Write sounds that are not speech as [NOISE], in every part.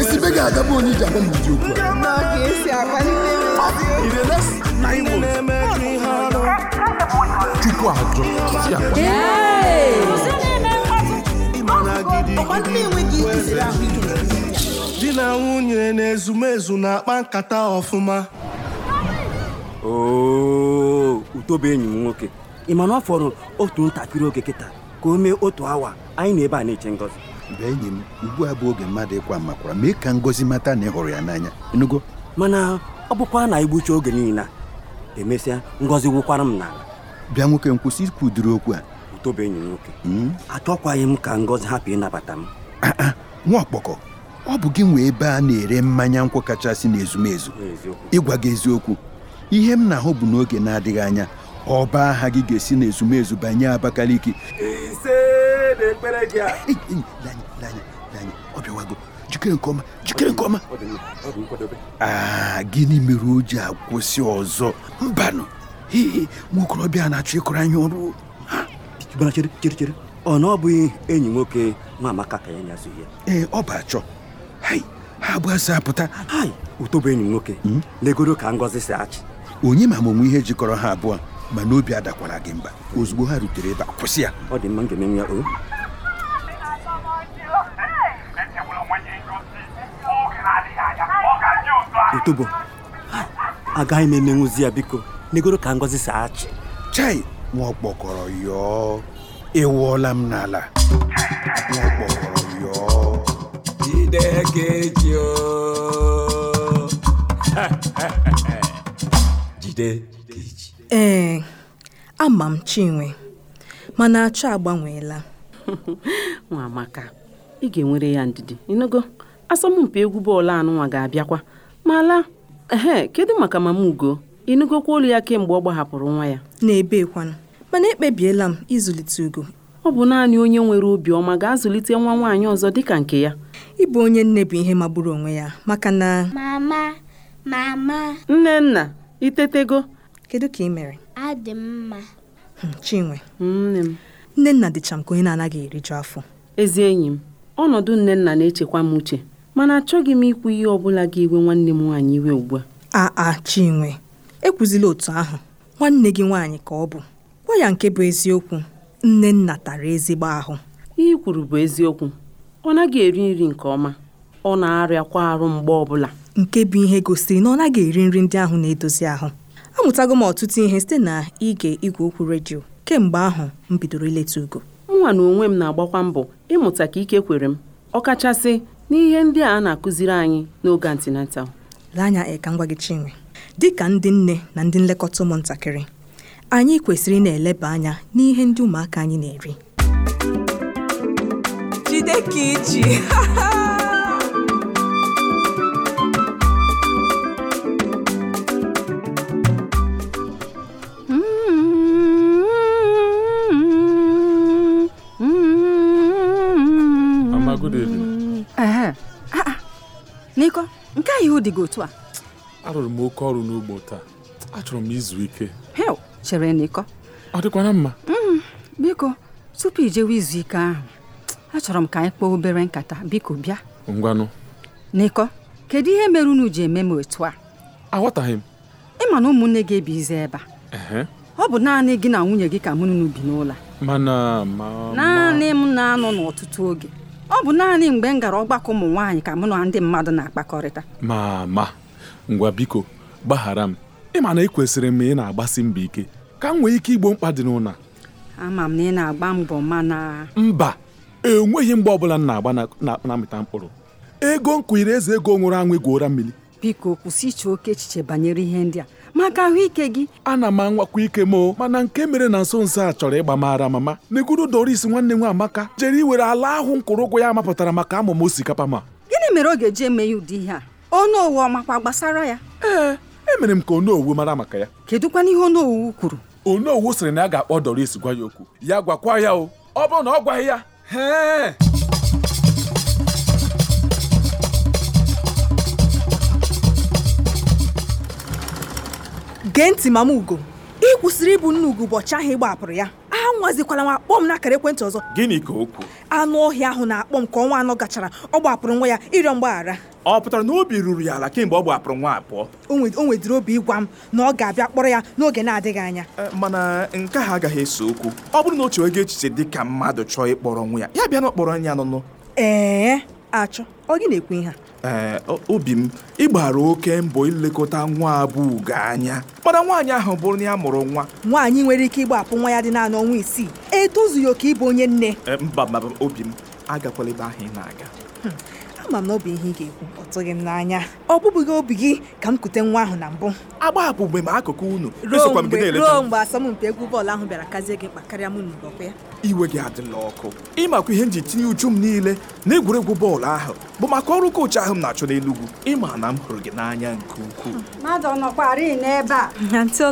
esibe ga bụ onye iji agwa m ụdị okwu chukwu ajọ di na nwunye na ezumezu na-akpa nkata ọfụma utobe enyi m nwoke ị ma na ọ fọrọ otu ntakịrị oge kịta ka o mee otu awa anyị na ebe a na-eche ngọzi. mgbe enyi m ugbu a bụ oge mmadụ ịkwa makwara mee ka ngozi mata na ị hụrụ ya n'anya enugo mana ọ bụkwa na igbucha oge niile emesịa ngozi wụkwara m n'ala bịa nwoke nkwụsị kwụsị ikwudiri okwu a utobe enyi nwoke hmm? achọkwaghị m ka ngozi hapụ ịnabata m ah, ah, nwa ọkpọkọ ọ bụ gị nwee ebe a na-ere mmanya nkwụ kachasị n'ezumezu ịgwa gị eziokwu ihe m na-ahụ bụ n'oge na-adịghị anya ọba aha gị ga-esi n'ezumezu banye Abakaliki jide ekpere gị a ọ jikere nke ọma jikere nke ọma gịnị mere o ji akwụsị ọzọ mbanụ hii nwokorobịa na-achọ ịkọrọ anyị ọrụ ọ na ọ bụghị enyi nwoke nwa amaka ka ya nyazụ ya ee ọ bụ achọ ha bụ asị apụta ụtọbụ enyi nwoke hmm? legoro ka ngọzi si achị onye ma amụmụ ihe jikọrọ ha abụọ mana obi adakwara gị mba ozugbo ha rutere ebe a kwụsị ya ọ dị mma m ga ya o otubo agaghị m emenwuzi ya biko n'egoro ka ngozi saa achị chai nwa ọkpọkọrọ yọọ ewuola m n'ala nwa ọkpọkọrọ yọọ jide jide eji ee ama m chinwe mana achọ agbanweela nwa amaka ị ga-enwere ya ndidi ịnụgo asọmpi egwu bọọlụ anụnwa ga-abịakwa mala ehe kedu maka mama ugo ịnụgokwa olu ya kemgbe ọ gbahapụrụ nwa ya na-ebekwana mana ekpebiela m ịzụlite ugo ọ bụ naanị onye nwere obiọma ga-azụlite nwa nwaanyị ọzọ dịka nke ya ịbụ onye nne bụ ihe magburu onwe ya maka na mama mama nne nna itetego kedu ka ị mere adị mma hmm, chinwe nne m nne nna dịcha m ka onye na-anaghị eriju afọ ezi enyi m ọnọdụ nne nna na-echekwa m uche Mana achọghị m ikwu ihe ọ bụla ga-ewe nwanne m nwaanyị iwe ugbu a. Aa Chinwe, ekwuzila otu ahụ. Nwanne gị nwaanyị ka ọ bụ. Gwa ya nke bụ eziokwu. Nnenna tara ezigbo ahụ. Ihe kwuru bụ eziokwu. Ọ naghị eri nri nke ọma. Ọ na-arịakwa arụ mgbe ọbụla. Nke bụ ihe gosiri na ọ naghị eri nri ndị ahụ na-edozi ahụ. Amụtago m ọtụtụ ihe site na ige igwe okwu redio. Kemgbe ahụ m bidoro ileta ugo. Nwa na onwe m na-agbakwa mbọ ịmụta ka ike kwere m. Ọkachasị n'ihe ndị a na-akụziri anyị n'oge antinatal lee anya ka m gwa gị Chinwe dịka ndị nne na ndị nlekọta ụmụntakịrị anyị kwesịrị na-eleba anya n'ihe ndị ụmụaka anyị na-eri jide ka iji good evening. Ah, ah. n'iko nke a ihu dịghị otu a arụrụ m oke ọrụ n'ugbo taa achọrọ m izu ike chere n'iko ọ dịkwana mma mm, biko tupu ijewe izu ike ahụ achọrọ m ka anyị kpọọ obere nkata biko bịa ngwanụ n'iko kedu ihe mere unu ji eme m otu a aghọtaghị m ịma na ụmụnne gị ebizi ebe a ọ bụ naanị gị na nwunye gị ka mụ bi n'ụlọ naanị m na-anọ n'ọtụtụ oge ọ bụ naanị mgbe m gara ọgbakọ ụmụ nwaanyị ka mụ na ndị mmadụ na-akpakọrịta ma ma ngwa biko gbaghara m ịma na ekwesịrị m ị na-agbasi mbọ ike ka m nwee ike igbo mkpa dị n'ụna ama m na ị na-agba mbọ mana mba enweghị mgbe ọbụla m na-agba na-amịta mkpụrụ ego nkụ eze ego nwụrụ anwụ egwuora mmiri biko kwụsị iche oke echiche banyere ihe ndị a maka ahụike gị ana m anwakwa ike moo mana nke mere na nso nso a chọrọ ịgba mara mama neguru doris nwanne nwa amaka jere iwere ala ahụ mkwụrụ ụgwọ ya mapụtara maka amụma osikapa ma gịnị mere ọ ga-eji eme ya ụdị ihe a onowu ọ makwa gbasara ya ee emere m ka onowu mara maka ya kedụkwana ihe owu kwuru owu sịrị na ya ga-akpọ doris gwa ya okwu ya gwakwa ya o ọ bụrụ na ọ gwaghị ya gee ntị mama ugo ị kwụsịrị ịbụ nne ugo ụbọchị ahụ ị gbapụrụ ya anwazikwala m akpọ m n'akara ekwentị ọzọ gịnị ka o kwuo anụ ọhịa ahụ na-akpọ m ka ọnwa anọ gachara ọ gbapụrụ nwa ya ịrịọ mgbaghara ọ pụtara na obi ruru ya ala kemgbe ọ gbapụrụ nwa abụọ o nwedịrị obi ịgwa m na ọ ga-abịa kpọrọ ya n'oge na-adịghị anya mana nke ahụ agaghị eso okwu ọ bụrụ na o chewego echiche dị ka mmadụ chọọ ịkpọrọ nwa ya ya bịa na ọkpọrọ nya nụnụ ee achọ ọ gị na ekwe ihe ee eh, obi m ịgbara oke mbọ ilekọta nwa abụ ugo anya mana nwaanyị ahụ bụrụ na ya mụrụ nwa nwaanyị nwere ike ịgbapụ nwa ya dị naanị ọnwa isii etozughị oke ịbụ onye nne eh, mba mba obi m agakwala ebe ahụ ị na-aga hmm. ama m na ọ bụ ihe ị ga-ekwu ọ tụghị m n'anya ọ bụbụghị obi gị ka m kute nwa ahụ na mbụ agbahapụ mgbe m akụkụ unu ruo mgbe asọmpi egwu bọọlụ ahụ bịara kazie gị karịa mụ n'ụbọkwa ya iwe gị adịla ọkụ ịmakwa ihe m ji tinye uchu m niile na egwuregwu bọọlụ ahụ bụ maka ọrụ koochi ahụ m na-achọ n'Enugwu ịma na m hụrụ gị n'anya nke ukwuu mmadụ ọ n'ebe a Antị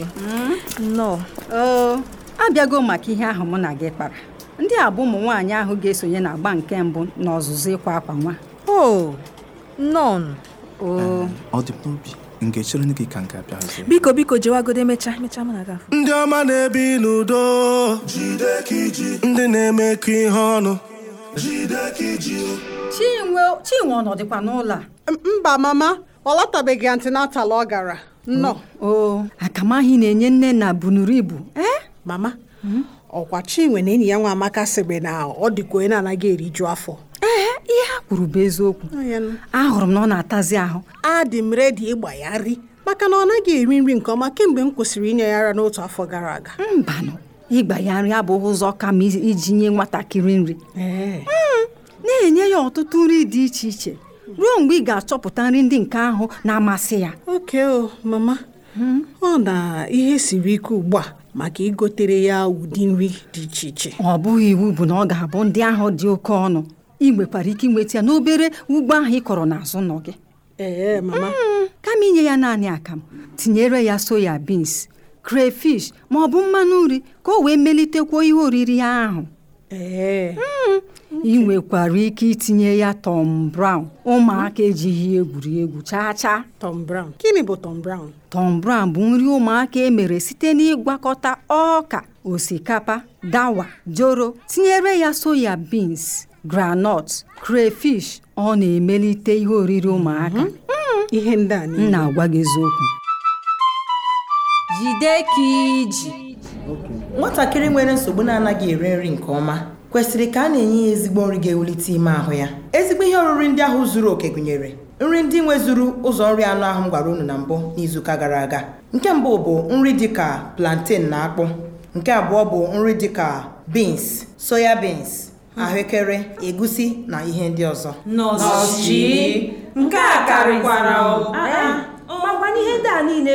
hmm? nọ oh, abịago maka ihe ahụ mụ na gị kpara ndị a bụ ụmụ nwaanyị ahụ ga-esonye na agba nke mbụ n'ọzụzụ ịkwa akwa nwa o nọn o ọ dị n'obi nke chere gị ka nke abịazi biko biko jewagodo emecha emecha m na-aga ndị ọma na-ebi n'udo ndị na-emekọ ihe ọnụ chinwe chinwe ọ nọdịkwa n'ụlọ a mba mama ọ lọtabeghị antinatal ọ gara nnọọ o akamahị na-enye nne na bunuru ibu eh? mama hmm? ọkwa chinwe na enyi ya nwa amaka sịrị na ọ dịka onye na-anaghị eriju afọ ee ihe ha kwuru bụ eziokwu ahụrụ m na ọ na-atazi ahụ adị m redi ịgba ya nri maka na ọ naghị eri nri nke ọma kemgbe m kwụsịrị inye ya ara n'otu afọ gara aga mbanụ ịgba ya nri abụghị ụzọ kama iji nye nwatakịrị nri mm, na-enye ya ọtụtụ nri dị iche iche ruo mgbe ị ga-achọpụta nri ndị nke ahụ na-amasị ya oke o mama mm. ọ na ihe siri ike ugbu a maka igotere ya ụdị nri dị iche iche ọ bụghị iwu bụ na ọ ga-abụ ndị ahụ dị oke ọnụ ị nwekwara ike inweta ya n'obere ugbo ahụ ị kọrọ n'azụ nọ gị ee mama mm, kama inye ya naanị akamụ tinyere ya soya bins crayfish ma ọ bụ mmanụ nri ka o wee melitekwa ihe oriri ahụ mm, ị nwekwara ike itinye ya Tom Brown ụmụaka ejighị egwuri chaa chaa Tom Brown gịnị bụ Tom Brown Tom Brown bụ nri ụmụaka emere site n'ịgwakọta ọka osikapa dawa joro tinyere ya soya beans granọt, crayfish ọ na-emelite ihe oriri ụmụaka mhm. mm-hmm. ihe ndị a na-agwa gị eziokwu jide ka iji nwatakịrị nwere nsogbu na-anaghị eri nri nke ọma kwesịrị ka a na-enye ya ezigbo nri ga-ewulite ime ahụ ya ezigbo ihe oriri ndị ahụ zuru oke gụnyere nri ndị nwezuru ụzọ nri anụ ahụ m gwara unu na mbụ n'izuụka gara aga nke mbụ bụ nri dịka plantain na akpụ nke abụọ bụ nri dịka beans soya beans ahụekere egusi na ihe ndị ọzọ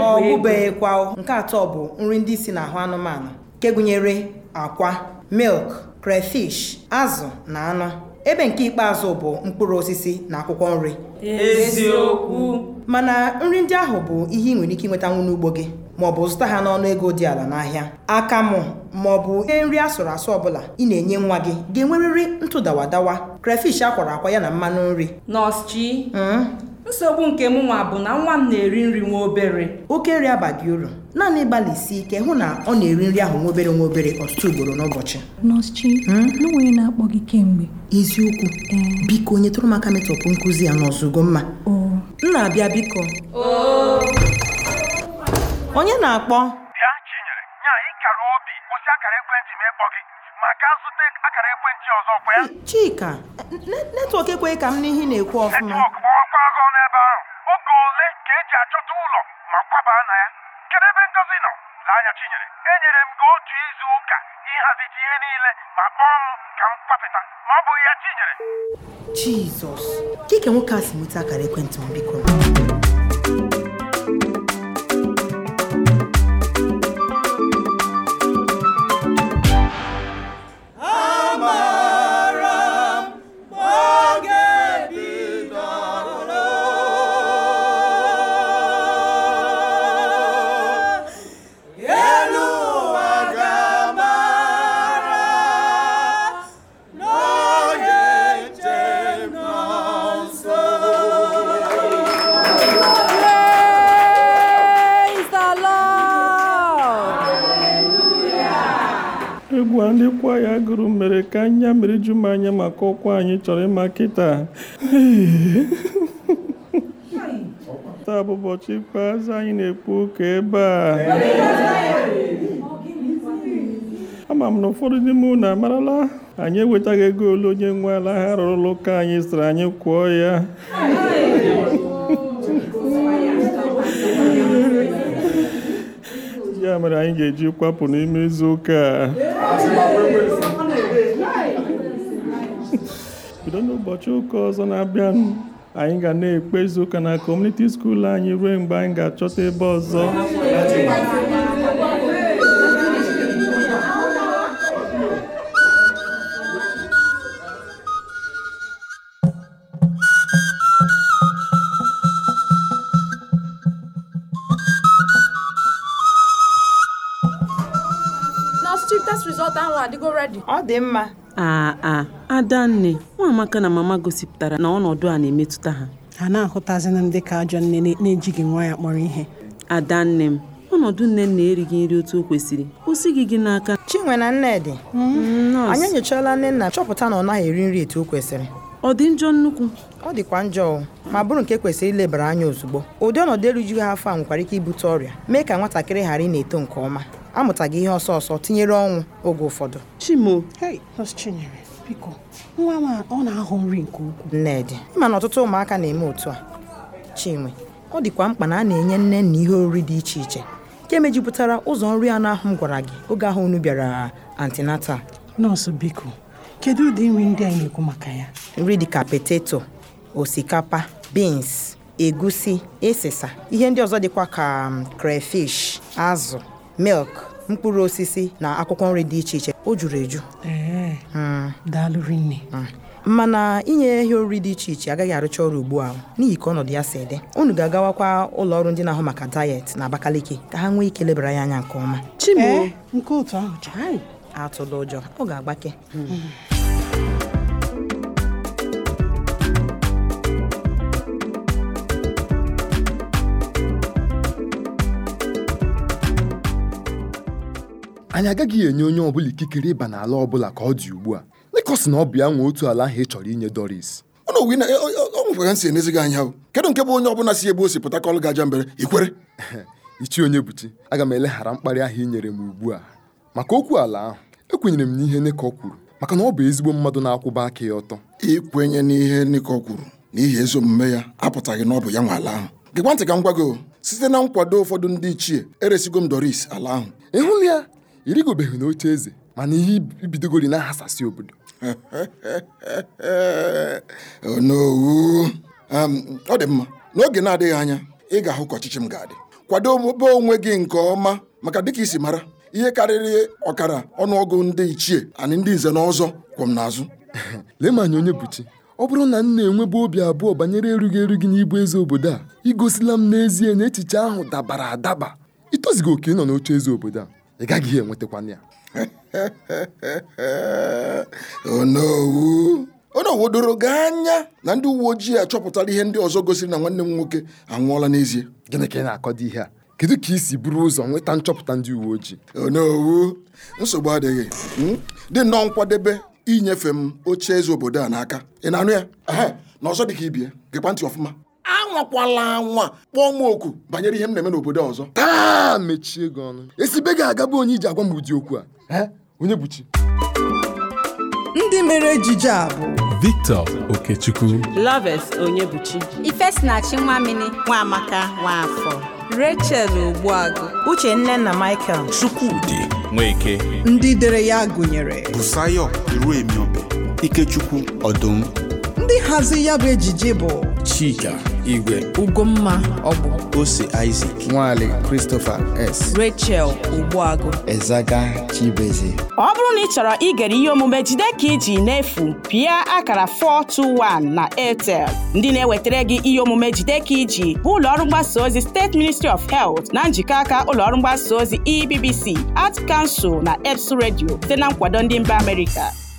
ọ bụbeghịkwa nke atọ bụ nri ndị si n'ahụ anụmanụ nke gụnyere akwa milk crayfish azụ na anụ ebe nke ikpeazụ bụ mkpụrụ osisi na akwụkwọ nri eziokwu mana nri ndị ahụ bụ ihe ị nwere ike inwetanwu n'ugbo gị maọbụ zụta ha n'ọnụ ego dị ala n'ahịa akamụ ma bụ ihe nri asụrụ asụ ọbụla ị na-enye nwa gị ga-enwerịrị ntụdawadawa crayfish akwara akwa ya na mmanụ nri nọọsụ chi hmm? nsogbu nke m nwa bụ na nwa m na-eri nri nwa obere oke nri abaghị uru naanị isi ike hụ na ọ na-eri nri ahụ nwa obere nwa obere ọtụtụ ugboro n'ụbọchị nọọsụ hmm? n'onwe na-akpọ gị kemgbe eziokwu biko nyetụrụ m aka metọpụ nkụzi ya n'ọzụgo mma nna na-abịa biko onye na-akpọ chinyere obi kwụsị akara ekwentị gị maka akara ekwentị ọzọ chika netwọk ekweghị ka m n'ihi na-ekwu ọfụma kwaba na ya kedu ebe ngozi nọ n'anya chinyere enyere m gị otu izu ụka ịhazite ihe niile ma kpọọ m ka m kwapụta ma ọ bụ ya chinyere jizọs dịka nwoke a si nweta akara ekwentị mbikọ. anya ju m anya maka ụkwụ anyị chọrọ ịma kịta [LAUGHS] taa bụ ụbọchị ikpeazụ anyị na-ekpu ụka ebe a ama m na ụfọdụ n'ime unu amarala anyị ewetaghị ego ole onye nwe ala ha rụrụ ụlọ ụka anyị sịrị anyị kwụọ ya ya mere anyị ga-eji kwapụ n'ime izuụka a bido n'ụbọchị ụka ọzọ na-abịanụ anyị ga na-ekpe izuụka na kọmuniti skuul anyị ruo mgbe anyị ga-achọta ebe ọzọ nọọsụ ahụ adịgo ọ dị mma aa a adanne nwaamaka na mama gosipụtara na ọnọdụ a na-emetụta ha ha na-ahụtazị m ndị ka ajọ nne na-ejighị nwa ya kpọrọ ihe adanne m ọnọdụ nne na-erighị nri otu o kwesịrị kwụsị gị gị n'aka chinwe na nnedị mm-hmm. mm-hmm. anyị enyochaala nne nna chọpụta na ọ naghị eri nri etu o kwesịrị ọ dị njọ nnukwu ọ dịkwa njọ ma bụrụ nke e kwesịrị ilebara anya ozugbo ụdị ọnọdụ erujughị afọ a nwekwara ike ibute ọrịa mee ka nwatakịrị ghara ị na-eto nke ọma amụtaghị ihe ọsọ ọsọ tinyere ọnwụ oge ụfọdụ Chimo Chinyere biko nwa m ọ na-ahụ nri nke ukwuu Nnedị ịma na ọtụtụ ụmụaka na-eme otu a Chinwe ọ dịkwa mkpa na a na-enye nne na ihe oriri dị iche iche nke mejupụtara ụzọ nri anụ ahụ m gwara gị oge ahụ unu bịara antinata nọọsụ biko kedu ụdị nri ndị anyị na-ekwu maka ya nri dịka poteto, osikapa beans egusi ịsịsa ihe ndị ọzọ dịkwa ka um, crayfish azụ milk mkpụrụ osisi na akwụkwọ nri dị iche iche o juru eju hmm. daalụ hmm. mana inye ehi oriri dị iche iche agaghị arụcha ọrụ ugbu a n'ihi ka ọnọdụ ya si dị unu ga-agawakwa ụlọ ọrụ ndị na-ahụ maka dayet na Abakaliki ka ha nwee ike lebara ya anya nke ọma atụla ụjọ ọ ga-agbake hmm. anyị agaghị enye onye ọbụla ikikere ịba n'ala ọbụla ka ọ dị ugbu a na ọ bụ ya nwe otu ala ahụ ị chọrọ inye Doris ọ nwekwaga nsi enezi gị anya kedu nke bụ onye ọbụla si ebe o si pụta ka ọlụ gaja mbere ikwere [LAUGHS] ichi onye buchi aga m eleghara mkparị ahụ inyere nyere m ugbu a maka okwu ala ahụ ekwenyere m n'ihe Nicol kwuru maka na ọ bụ ezigbo mmadụ na-akwụba aka ya ọtọ ikwenye n'ihe Nicol kwuru n'ihi ezi omume ya apụtaghị na ọ bụ ya nwe ala ahụ gịkwa ntị ka m gwago site na nkwado ụfọdụ ndị ichie eresigo m Doris ala ahụ ị ya ịrịgobeghị n'oche eze mana ihe ibidogori na-ahasasị obodo [LAUGHS] onowu ọ dị mma n'oge na-adịghị anya ị ga-ahụ ka ọchịchị m ga-adị kwado obe onwe gị nke ọma maka dịka isi mara ihe karịrị ọkara ọnụọgụ ndị ichie anị ndị nze na ọzọ na n'azụ [LAUGHS] lee ma onye buchi ọ bụrụ na m na-enwebe obi abụọ banyere erughị eru gị eze obodo a igosila m n'ezie na echiche ahụ dabara adaba ịtozigo oke nọ n'oche eze obodo a ị gaghị enwetakwana ya [LAUGHS] onowu onowu doro gị anya na ndị uwe ojii achọpụtara ihe ndị ọzọ gosiri na nwanne m nwoke anwụọla n'ezie gịnị ka ị na-akọdo ihe a kedu ka i si buru ụzọ nweta nchọpụta ndị uwe ojii onowu nsogbu adịghị hmm? dị nnọọ nkwadebe inyefe m oche eze obodo a n'aka ị na-anụ ya na ọzọ dị ka ibie gekwa ntị ọfụma anwakwala anwa kpọọ m oku banyere ihe m na-eme n'obodo ọzọ taa mechie gị ọnụ esibe gị agabụ onye iji agwa m ụdị okwu a onye buchi ndị mere ejije a bụ Victor Okechukwu Loves Onyebuchi Ifesinachi Nwamini Nwamaka Nwafọ Rachel Ogbuagụ Uche nne na Michael Chukwudi Nweke ndị dere ya gụnyere Busayo Iruemiobe Ikechukwu Ọdụm ndị hazi ya bụ ejije bụ Chika Igwe Ugomma Ọgbụ Ose Isaac Nwale Christopher S Rachel Ogbuagu Ezaga Chibeze ọ bụrụ na ị chọrọ igere ihe omume jide ka iji efu pịa akara 421 na Airtel ndị na-ewetara gị ihe omume jide ka iji bụ ụlọọrụ mgbasa ozi steeti Ministry of Health na njikọ aka ụlọọrụ mgbasa ozi EBBC Art Council na EBS redio site na nkwado ndị mba Amerịka